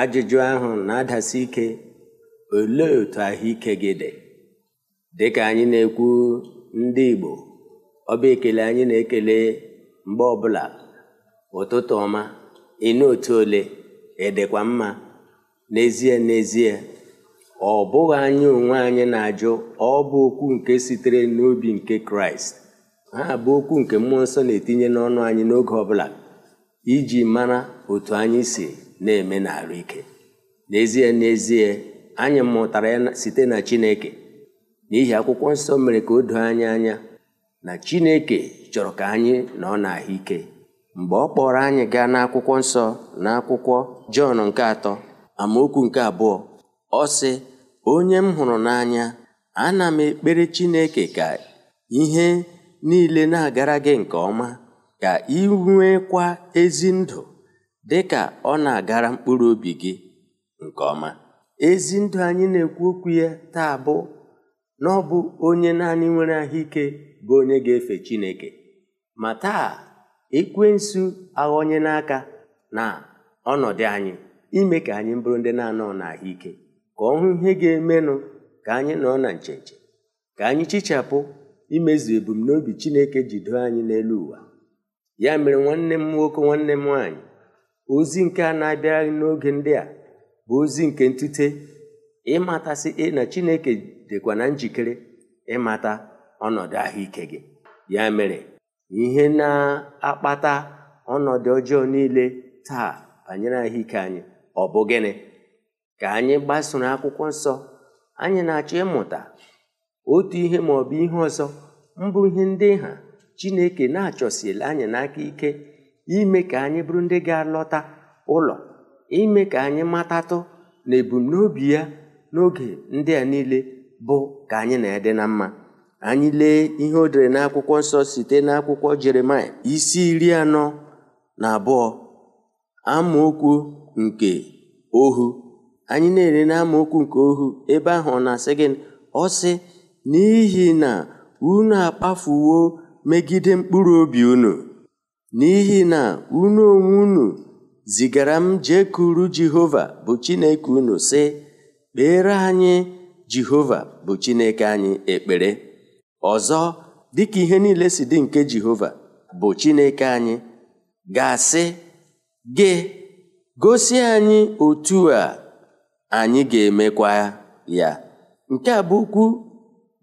ajụjụ ahụ na-adasi ike olee otu ahụike gị dị dịka anyị na-ekwu ndị Igbo ọba ekele anyị na-ekele mgbe ọbụla ụtụtụ ọma ịnụ otu ole edekwa mma n'ezie n'ezie ọ bụghị anyị onwe anyị na-ajụ ọ bụ okwu nke sitere n'obi nke Kraịst ha bụ okwu nke mmụọ nsọ na-etinye n'ọnụ anyị n'oge ọbụla iji mara otu anyị si na-eme n'arụ ike n'ezie n'ezie anyị mụtara ya site na Chineke n'ihi akwụkwọ nsọ mere ka o doo anya anya na Chineke chọrọ ka anyị nọ n'ahụ ike mgbe ọ kpọrọ anyị gaa n'akwụkwọ nsọ na akwụkwọ Jọn nke atọ amaokwu nke abụọ ọ sị onye m hụrụ n'anya ana m ekpere Chineke ka ihe niile na-agara gị nke ọma ka ị nwekwa ezi ndụ dị ka ọ na-agara mkpụrụ obi gị nke ọma ezi ndụ anyị na-ekwu okwu ya taa bụ na ọ bụ onye naanị nwere ahụike bụ onye ga-efe Chineke ma taa ekwensu aghọnye n'aka na ọnọdụ anyị ime ka anyị bụrụ ndị na-anọ n'ahụike ka ọ hụ ihe ga-emenụ ka anyị nọ na ncheche ka anyị chichapụ imezu ebumnobi Chineke doo anyị n'elu ụwa ya mere nwanne m nwoke nwanne m nwaanyị ozi nke a na-abịarị n'oge ndị a bụ ozi nke ntute ịmatasị na chineke dịkwa na njikere ịmata ọnọdụ ahụike gị ya mere ihe na-akpata ọnọdụ ọjọọ niile taa banyere ahụike anyị ọ bụ gịnị ka anyị gbasoro akwụkwọ nsọ anyị na-achọ ịmụta otu ihe ma bụ ihe ọzọ mbụ ihe ndị ha chineke na-achọsila anyị n'aka ike ime ka anyị bụrụ ndị ga-alọta ụlọ ime ka anyị matatụ na ebumnobi ya n'oge ndị a niile bụ ka anyị na-ede na mma anyị lee ihe o dere n'akwụkwọ nsọ site n'akwụkwọ Jeremaịa isi iri anọ na abụọ amaokwu nke ohu anyị na-ere na nke ohu ebe ahụ ọ na-asị gị ọ sị n'ihi na unu akpafuwo megide mkpụrụ obi unu n'ihi na unu onwe unu zigara m jekuru Jehova bụ Chineke unu sị kpere anyị Jehova bụ Chineke anyị ekpere ọzọ dịka ihe niile si dị nke Jehova bụ Chineke anyị ga-asị gị gosi anyị otu a anyị ga-emekwa ya nke a bụ okwu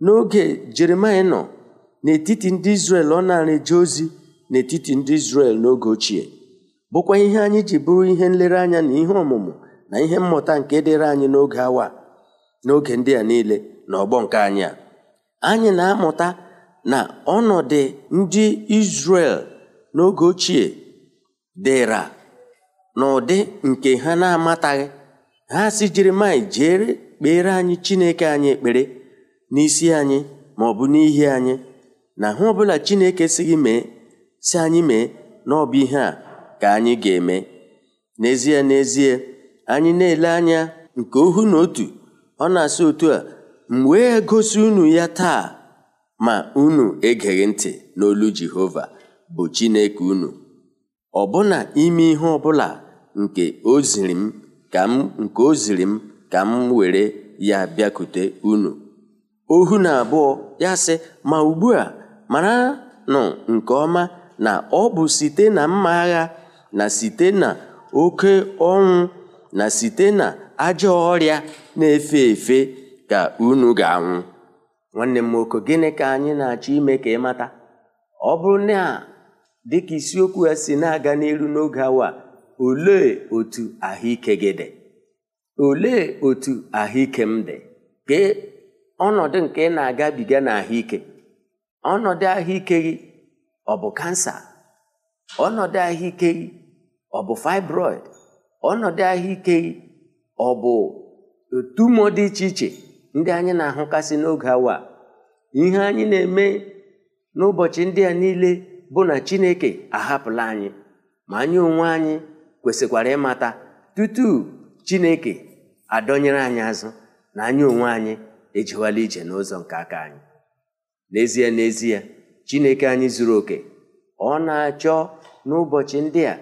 n'oge Jeremaịa nọ n'etiti ndị Izrel ọ na-eje ozi n'etiti ndị Izrel n'oge ochie bụkwa ihe anyị ji bụrụ ihe nlereanya na ihe ọmụmụ na ihe mmụta nke dịrị anyị n'oge awa n'oge ndị a niile na ọgbọ nke anyị a anyị na-amụta na ọnọdụ ndị Izrel n'oge ochie dịra n'ụdị nke ha na-amataghị ha si jiri jere kpere anyị Chineke anyị ekpere n'isi anyị ma ọ bụ n'ihi anyị na ha ọbụla Chineke si gị mee si anyị mee na ihe a ka anyị ga-eme n'ezie n'ezie anyị na-ele anya nke ohu na otu ọ na-asị otu a m wee gosi unu ya taa ma unu egeghị ntị n'olu Jehova bụ Chineke unu ọbụna ime ihe ọbụla nke oziri m ka m nke o m ka m were ya bịakute unu ohu na abụọ ya sị ma ugbu a mara nụ nke ọma na ọ bụ site na mma agha na site na oke ọnwụ na site na ajọ ọrịa na-efe efe ka unu ga-anwụ nwanne m nwoke gịnị ka anyị na-achọ ime ka ị mata ọ bụrụ na dịka isiokwu ya si na-aga n'elu n'oge awa olee otu ahụike dị olee otu ahụike m dị gee ọnọdụ nke ị na-agabiga na ahụike ọnọdụ ahụike gị ọ bụ kansa ọnọdụ ahụike ọ bụ fibroid ọnọdụ ahụike ọ bụ tumo dị iche iche ndị anyị na-ahụkasị n'oge awa ihe anyị na-eme n'ụbọchị ndị a niile bụ na Chineke ahapụla anyị ma anyị onwe anyị kwesịkwara ịmata tutu Chineke adọnyere anyị azụ na anyị onwe anyị ejiwala ije n'ụzọ nke aka anyị n'ezie n'ezie chineke anyị zuru oke ọ na-achọ n'ụbọchị ndị a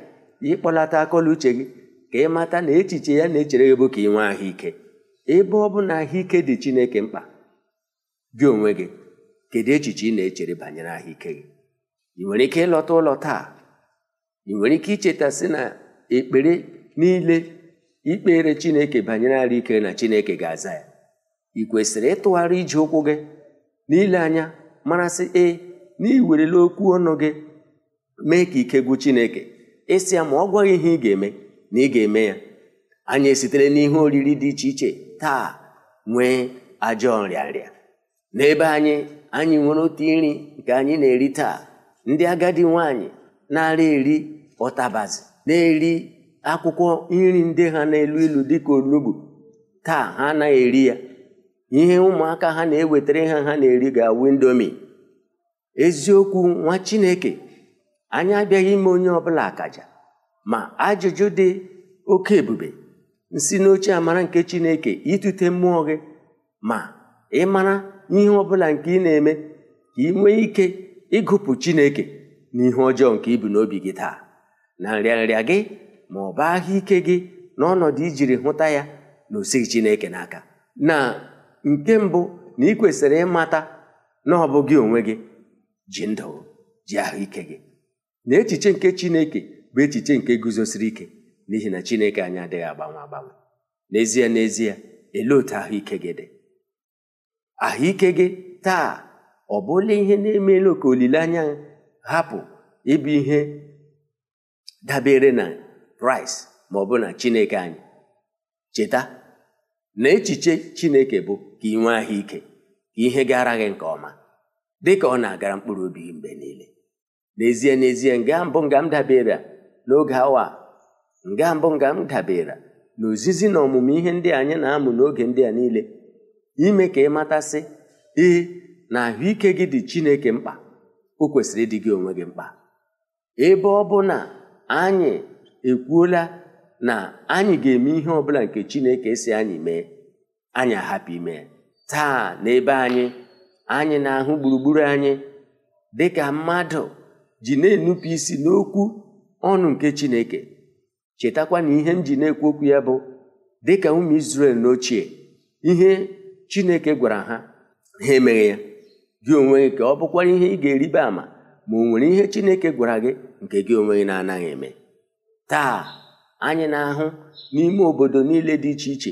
ịkpọlata akọla uche gị ka ị mata na echiche ya na-echere gị bụ ka ị nwee ahụike ebe ọ bụ na ahụike dị chineke mkpa gị onwe gị kedu echiche ị na-echere banyere ahụike gị ị nwere ike ịlọta ụlọ taa ị nwere ike icheta sị na ekpere niile ikpere chineke banyere ara na chineke ga-aza ya ị kwesịrị ịtụgharị iji ụkwụ gị n'ile anya marasị ee na iwerele okwu ọnụ gị mee ka ike gwụ chineke ịsị ya ma ọ gwaghị ihe ị ga-eme na ị ga-eme ya anyị esitere n'ihe oriri dị iche iche taa nwee ajọ nrịanrịa n'ebe anyị anyị nwere otu nri nke anyị na-eri taa ndị agadi nwanyị na-ara eri ọtabazi na-eri akwụkwọ nri ndị ha na-elu ilu dịka onugbu taa ha anaghị eri ya ihe ụmụaka ha na-ewetara ha ha na-eri ga indomi. eziokwu nwa chineke anyị abịaghị ime onye ọbụla akaja ma ajụjụ dị oke ebube nsi n'oche amara nke chineke itute mmụọ gị ma ịmara ihe ọbụla nke ị na-eme ka ị nwee ike ịgụpụ chineke n'ihe ọjọọ nke ibu n'obi gị taa na nrịa gị ma ọ bụ ahụ ike gị n'ọnọdụ ijiri hụta ya na osighi chineke n'aka na nke mbụ na ị kwesịrị ịmata na ọ bụ gị onwe gị ji ndụ ji ahụike gị na echiche nke chineke bụ echiche nke guzosiri ike n'ihi na chineke anyị adịghị agbanwe agbanwe n'ezie n'ezie elee otu ahụike gị dị ahụike gị taa ọ bụla ihe na-emela ka olileanya hapụ ịbụ ihe dabere na price ma ọ bụ na chineke anyị cheta na echiche chineke bụ ka ị nwee ahụike ka ihe gara gị nke ọma dị ka ọ na-agara mkpụrụ obi gị mgbe niile n'ezie n'ezie nga mbụ nga m dabere n'oge awa nga mbụ nga m dabere na ozizi na ọmụmụ ihe ndị anyị na-amụ n'oge ndị a niile ime ka ị matasị ee na ahụike gị dị Chineke mkpa o kwesịrị ịdị gị onwe gị mkpa ebe ọ bụ na anyị ekwuola na anyị ga-eme ihe ọ bụla nke Chineke si anyị mee anyị ahapụ ime taa n'ebe anyị anyị na-ahụ gburugburu anyị dịka mmadụ ji na-enupụ isi n'okwu ọnụ nke Chineke chetakwa na ihe m ji na-ekwu okwu ya bụ dịka ụmụ na n'ochie ihe Chineke gwara ha ha emeghe ya gị onwe gị ka ọ bụkwara ihe ị ga-eribe ama ma ọ nwere ihe Chineke gwara gị nke gị onwe gị na-anaghị eme taa anyị na-ahụ n'ime obodo niile dị iche iche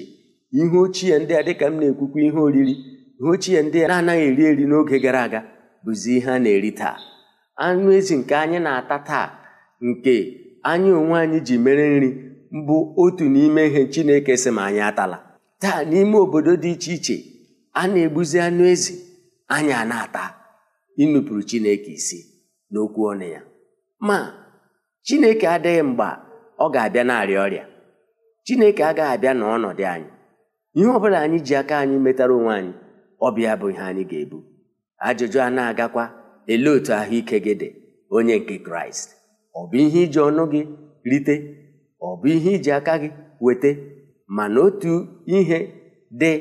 ihe ochie ndị a dịka m na-ekwukwa ihe oriri ihe ochie ndị a na-anaghị eri eri n'oge gara aga bụzi ihe a na-eri taa anụ ezi nke anyị na-ata taa nke anyị onwe anyị ji mere nri mbụ otu n'ime ihe Chineke sị ma anyị atala taa n'ime obodo dị iche iche a na-egbuzi anụ ezi anyị na-ata ịnụpụrụ Chineke isi n'okwu ọnụ ya ma Chineke adịghị mgba ọ ga-abịa na-arịa ọrịa Chineke agaghị abịa n'ọnọdụ anyị ihe ọ bụla anyị ji aka anyị metara onwe anyị Ọbịa bụ bụ ihe anyị ga-ebu ajụjụ a na-agakwa elee otu ahụike gị dị onye nke kraịst ọ bụ ihe iji ọnụ gị rite ọ bụ ihe iji aka gị weta mana otu ihe dị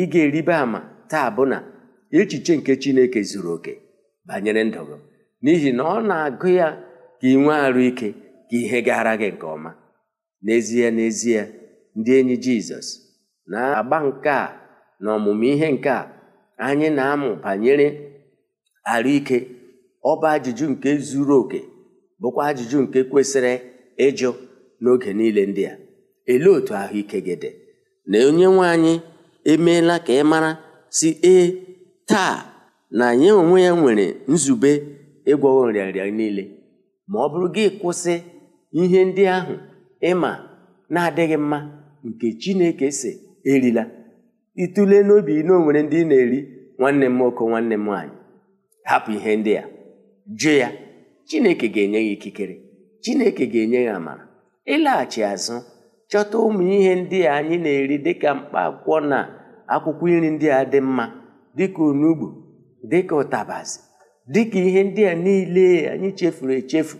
ịga ga-eribe ama taa bụ na echiche nke chineke zuru oke banyere ndụ n'ihi na ọ na-agụ ya ka ị nwee arụ ike ka ihe gara gị nke ọma n'ezie n'ezie ndị enyi jizọs na-agba nke a na ọmụmụ ihe nke a anyị na-amụ banyere arụike ọ bụ ajụjụ nke zuru oke bụkwa ajụjụ nke kwesịrị ịjụ n'oge niile ndị a elee otu ahụike gị dị na onye nwe anyị emeela ka ị mara si ee taa na nye onwe ya nwere nzube ịgwọ nrịanrịa niile ma ọ bụrụ gị kwụsị ihe ndị ahụ ịma na-adịghị mma nke Chineke si erila itule n'obi na onwere ndị ndị na-eri nwanne m nwoke nwanne m nwaanyị hapụ ihe ndị a jụ ya chineke ga-enye gị ikikere chineke ga-enye ya amara ịlaghachi azụ chọta ụmụ ihe ndị a anyị na-eri dịka mkpa akwụkwọ na akwụkwọ iri ndị a dị mma dịka onugbu dịka ụtabazị dịka ihe ndị a niile anyị chefuru echefu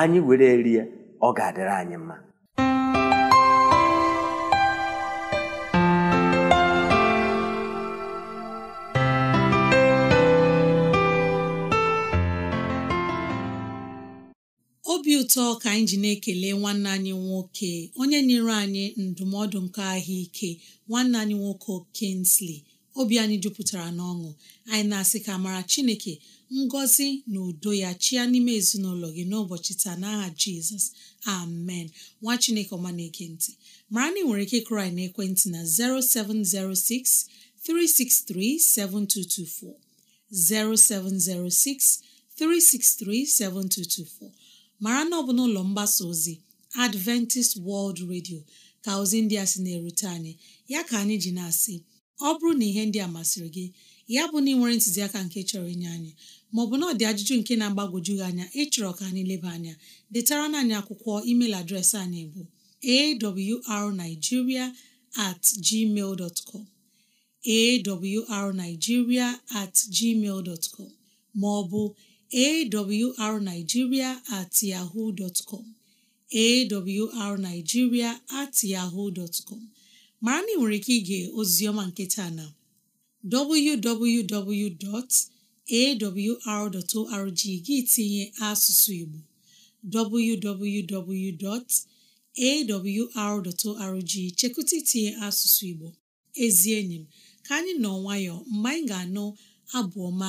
anyị were ya ọ ga-adịrị anyị mma ụtọ ka anyị ji na-ekele nwanne anyị nwoke onye nyere anyị ndụmọdụ nke ahụike nwanne anyị nwoke kinsley obi anyị jupụtara n'ọṅụ anyị na-asị ka mara Chineke ngọzi na udo ya chia n'ime ezinụlọ gị n'ụbọchị taa n'aha Jizọs amen nwa Chineke ọma na-ekentị mara na ị nwere ike kraị na ekwentị na 0706 363 7224 0706 363 7224 mara na ọ bụ n'ụlọ mgbasa ozi Adventist World Radio ka ozi ndị a sị na-erute anyị ya ka anyị ji na-asị ọ bụrụ na ihe ndị a masịrị gị ya bụ na ị nwere ntụziaka nke chọrọ inye anyị maọbụ na ọ dị ajụjụ nke na-agbagwoju gị anya ịchọrọ ka anyị leba anya detara anyị akwụkwọ email adreesị anyị bụ awrnigeria at gmail dot com awrnigeria at gmail dot com maọbụ awrnigeria at ma com at mara na ị nwere ike ige ozioma nketa na www.awr.org gị tinye asụsụ Igbo www.awr.org chekụta itinye asụsụ Igbo ezi enyi m ka anyị nọ nwayọọ mgbe anyị ga-anụ abụ ọma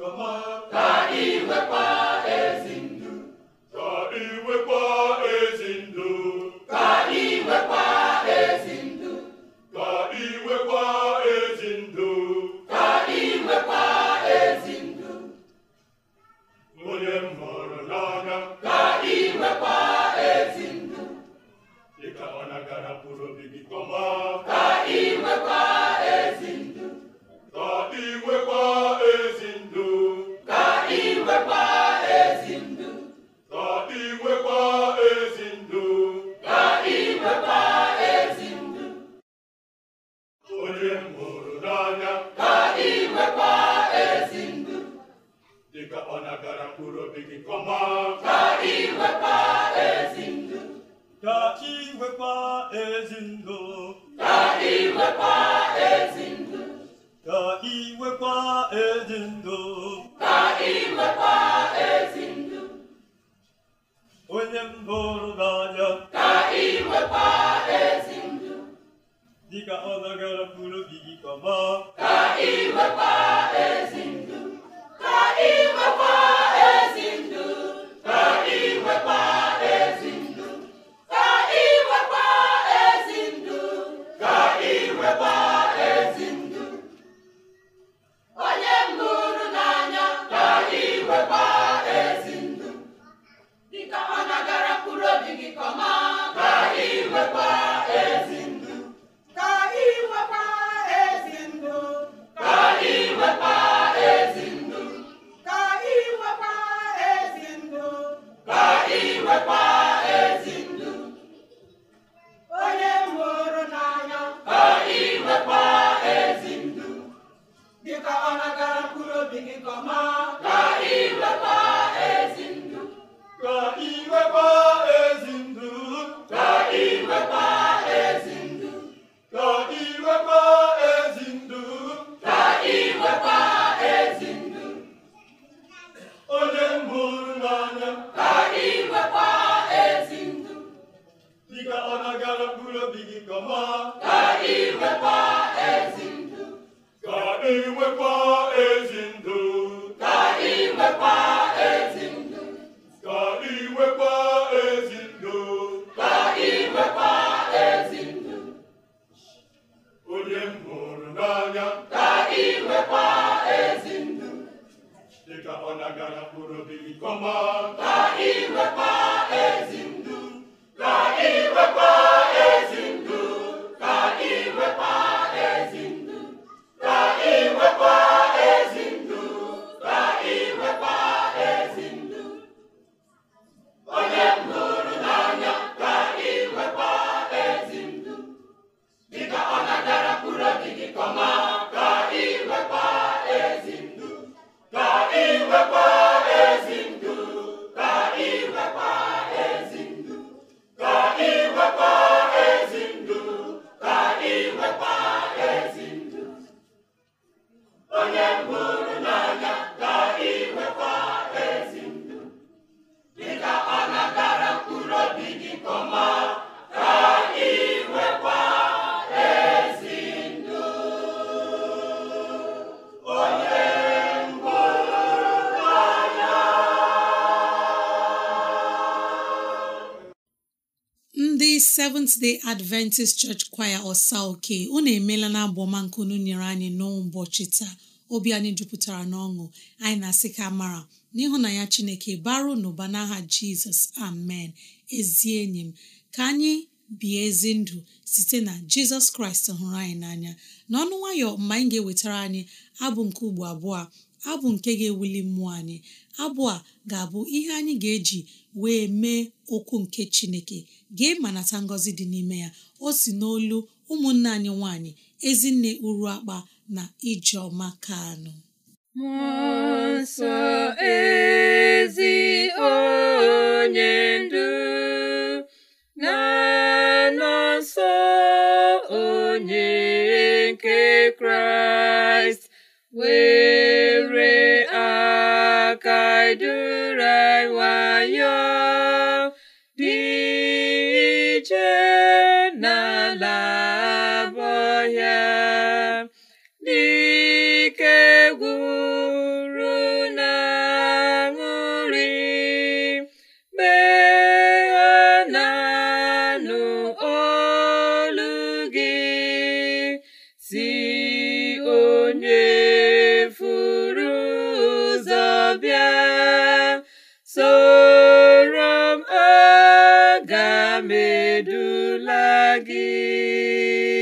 Come on. Gözün Roma Seventh Adventist Church Choir ọsa oke unu emeela na abụọma nke unu nyere anyị n'ụbọchị taa obi anyị jupụtara n'ọṅụ anyị na-asị ka mara n'ịhụ na ya Chineke baru n'ụba n'aha Jizọs amen ezi enyi m ka anyị bie ezi ndụ site na Jizọs Kraịst hụrụ anyị n'anya n'ọnụ nwayọ mgbe anyị ga-ewetara anyị abụ nke ugbo abụọ abụ nke ga-ewuli mmụọ anyị abụ a ga-abụ ihe anyị ga-eji wee mee okwu nke chineke ga ma nata ngọzi dị n'ime ya o si n'olu ụmụnne anyị nwanyị ezinne uru akpa na ijeọma kanụ mụsọ ezi onye durai wayo dị ije ga m gị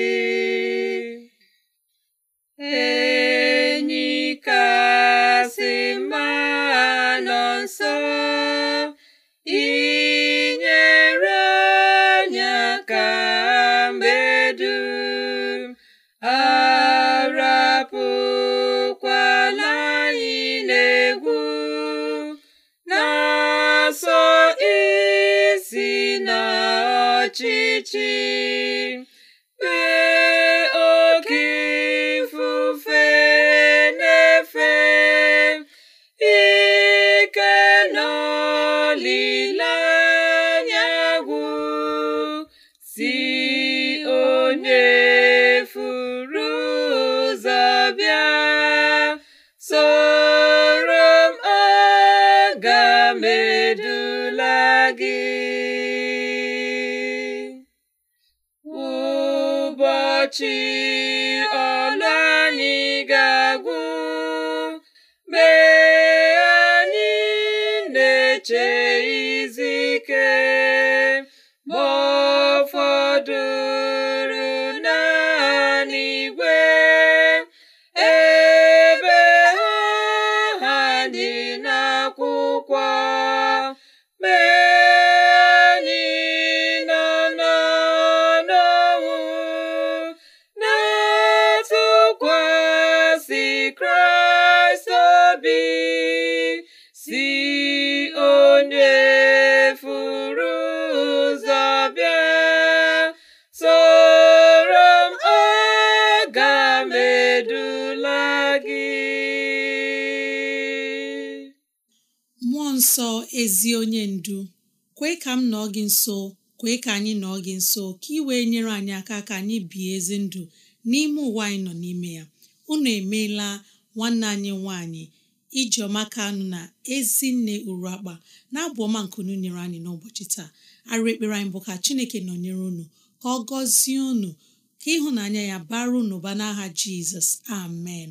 gị ụbọchị ezi onye ndu kwee ka m nọọ gị nso kwee ka anyị nọọ gị nso ka ị wee nyere anyị aka ka anyị bie ezi ndụ n'ime ụwa anyị nọ n'ime ya unu emeela nwanne anyị nwanyị ijeọma kanụ na ezinne uru akpa na-abụ ọma nkunu nyere anyị n'ụbọchị taa arụ ekpere anyị bụ ka chineke nọnyere unu ka ọ gọzie unu ka ịhụnanya ya bara unu ba n'aha jizọs amen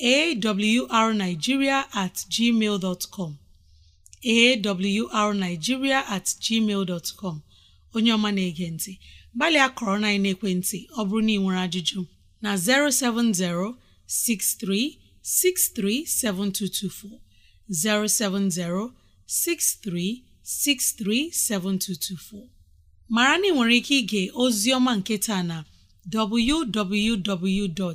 arigiria atgmal com arigiria atgmal com onye ọma na-ege ntị gbalịa kọrọ na ekwentị ọ bụrụ na ị nwere ajụjụ na 070 7224. 070-6363-7224 mara na ike ige ozi ọma nke taa na www.